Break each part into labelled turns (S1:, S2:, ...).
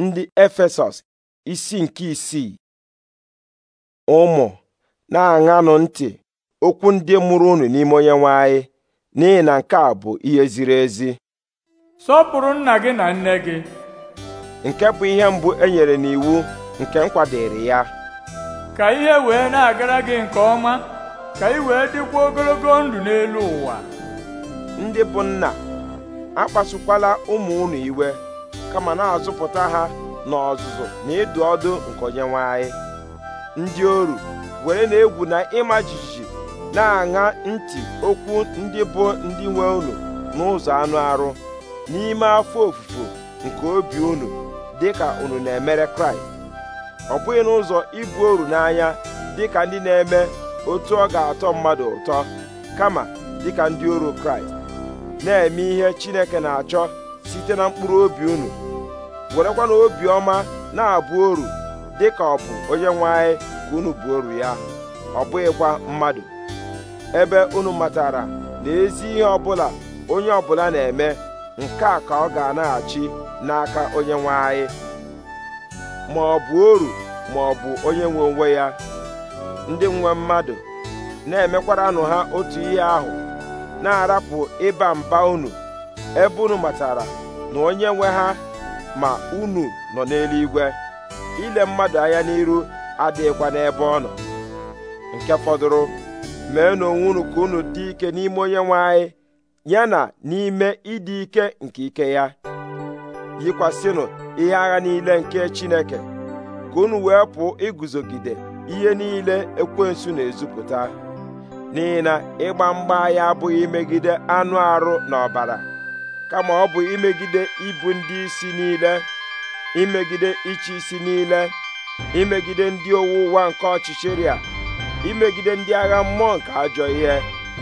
S1: ndị Efesọs isi nke isii ụmụ na-aṅanụ ntị okwu ndị mụrụ unu n'ime onye nwe n'ihi na nke a bụ ihe ziri ezi sọpụrụ nna gị na nne gị nke bụ ihe mbụ e nyere n'iwu nke m ya ka ihe wee na-agara gị nke ọma ka ị wee dịkwa ogologo ndụ n'elu ụwa ndị bụ nna akpasukwala ụmụ unu iwe kama na-azụpụta ha n'ọzụzụ na ịdụ ọdụ nke onyenwe ndị oru were na-egwu na ịma jijiji na-aṅa ntị okwu ndị bụ ndị nwe unu n'ụzọ anụ arụ n'ime afọ ofufo nke obi unu dịka unu na-emere kraịst ọ bụghị n'ụzọ ibu oru n'anya dịka ndị na-eme otu ọ ga-atọ mmadụ ụtọ kama dịka ndị oru kraịst na-eme ihe chineke na-achọ site na mkpụrụ obi unu werekwa na obiọma na-abụ oru dị ka ọ bụ onye nwe anyị ka unu bụ oru ya ọ bụghịkwa mmadụ ebe unu matara na ezi ihe ọbụla onye ọbụla na-eme nke a ka ọ ga-anaghachi n'aka onye nwe anyị ma ọ bụ oru ma ọ bụ onye nwe onwe ya ndị nwe mmadụ na-emekwaranụ ha otu ihe ahụ na-arapụ ịba mba unu ebe unu matara na onye nwe ha ma unu nọ n'eluigwe ile mmadụ anya n'iru adịghịkwa n'ebe ọ nọ nke fọdụrụ mee n'onwe unu ka unu dị ike n'ime onye nwe anyị ya na n'ime ịdị ike nke ike ya yikwasịnụ ihe agha niile nke Chineke ka unu wee pụọ iguzogide ihe niile ekwensu na-ezupụta n'ihi na ịgba mgba anyị abụghị imegide anụ arụ na kama ọ bụ imegide ibu ndị isi niile imegide ịchị isi niile imegide ndị owu ụwa nke ọchịchịrị a imegide ndị agha mmụọ nke ajọ ihe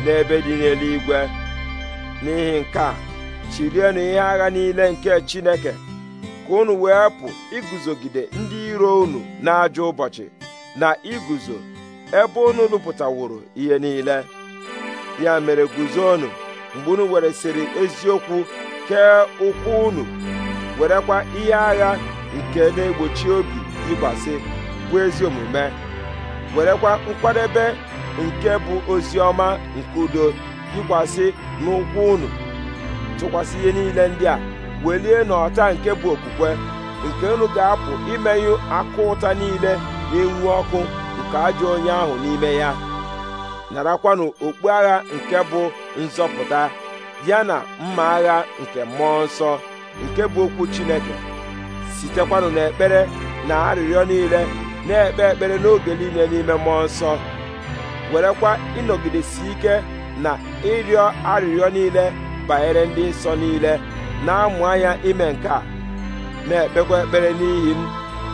S1: n'ebe dị n'eluigwe n'ihi nke a chirienụ ihe agha niile nke Chineke ka unu wee pụ iguzogide ndị iro unu n'ajọ ụbọchị na iguzo ebe unu lụpụtaworo ihe niile ya mere guzo unu mgbe unu weresịrị eziokwu nke ụkwụ unu werekwa ihe agha nke na-egbochi obi ịgbasi bụ ezi omume werekwa nkwadebe nke bụ ozi ọma nke udo yikwasị n'ụkwụ unu tụkwasị ihe niile ndị a welie n'ọta nke bụ okwukwe nke unu ga-apụ imenyụ akụ ụta niile na-enwu ọkụ nke ajọ onye ahụ n'ime ya narakwanụ okpu agha nke bụ nzọpụta ya na mma agha nke mmụọ nsọ nke bụ okwu Chineke sitekwanụ n'ekpere na arịrịọ niile na-ekpe ekpere n'oge niile n'ime mmụọ nsọ werekwa ịnọgidesi ike na ịrịọ arịrịọ niile banyere ndị nsọ niile na-amụ anya ime nke na-ekpekwa ekpere n'ihi m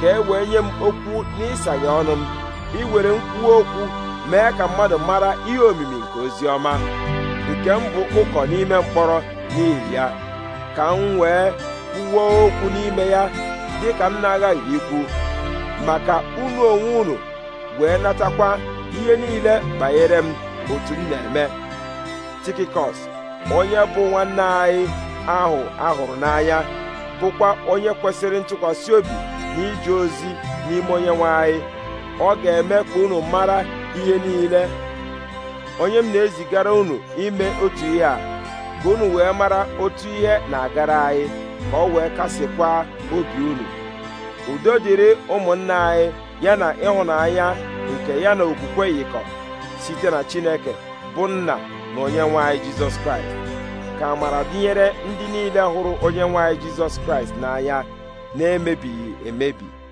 S1: ka e wee nye m okwu n'ịsaghe ọnụ m iwere m okwu mee ka mmadụ mara ihe omimi nke ozi ọma nke m bụ ụkọ n'ime mkpọrọ n'ihi ya ka m wee kwuo okwu n'ime ya dị ka m na-aghaghị ikwu maka unu onwe unu wee natakwa ihe niile banyere m otu m na-eme tikikọs onye bụ nwanne anyị ahụ ahụrụ n'anya bụkwa onye kwesịrị ntụkwasị obi na ije ozi n'ime onye nwe anyị ọ ga-eme ka unu mara ihe niile onye m na-ezigara unu ime otu ihe a ka unu wee mara otu ihe na-agara anyị ka ọ wee kasịkwa obi unu udo dịrị ụmụnna anyị ya na ịhụnanya nke ya na okwukwe yikọ site na Chineke bụ nna na onye anyị Jizọs Kraịst ka amara dịnyere ndị niile hụrụ onyenwe anyị Jizọs Kraịst n'anya na-emebighị emebi